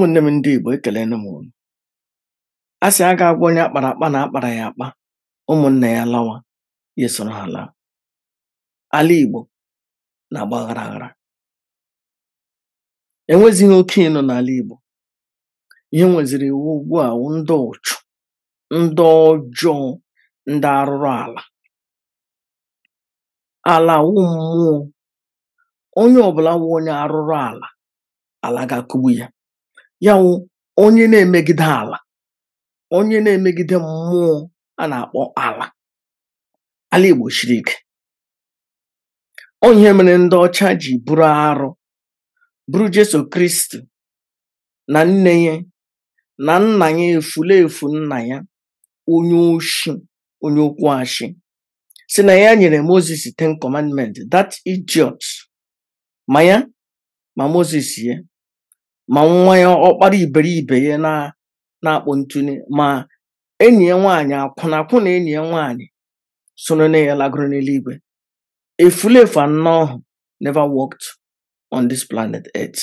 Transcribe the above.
ụmụnne m ndị Igbo ekelena m unu a sị a ga-agwa onye akpara akpa na akpara ya akpa ụmụnna ya lawa ya esoro ha laa ala Igbo na-agba aghara aghara e enwezighị oke ịnọ n'ala Igbo ihe nweziri iwu ugbu a ndị ụchụ ndị ọjọọ ndị arụrụ ala ala wụ mmụọ onye ọbụla wụ onye arụrụ ala ala ga-akụgbu ya ya onye na-emegide ala onye na-emegide mmụọ a na-akpọ ala ala Igbo siri ike onye mere ndị ọcha ji bụrụ arụ bụrụ Jesu Kristi na nne ya na nna ya efu nna ya onye oshi onye okwu achị si na ya nyere Moses ten commandment "Dat idiot ma ya ma Moses ya ma nwa ya ọkpara iberibe ya na-akpọ ntụnye ma enyi ya nwaanyị akwụna akwụna enyi ya nwaanyị soro na ya lagoro n'eluigwe efulefu anọ ahụ never worked on this planet earth